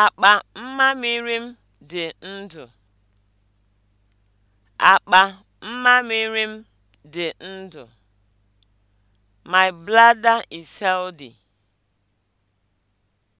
Akpa mmamịrị m dị ndụ. Akpa mmamịrị m dị ndụ. My bladder is healthy.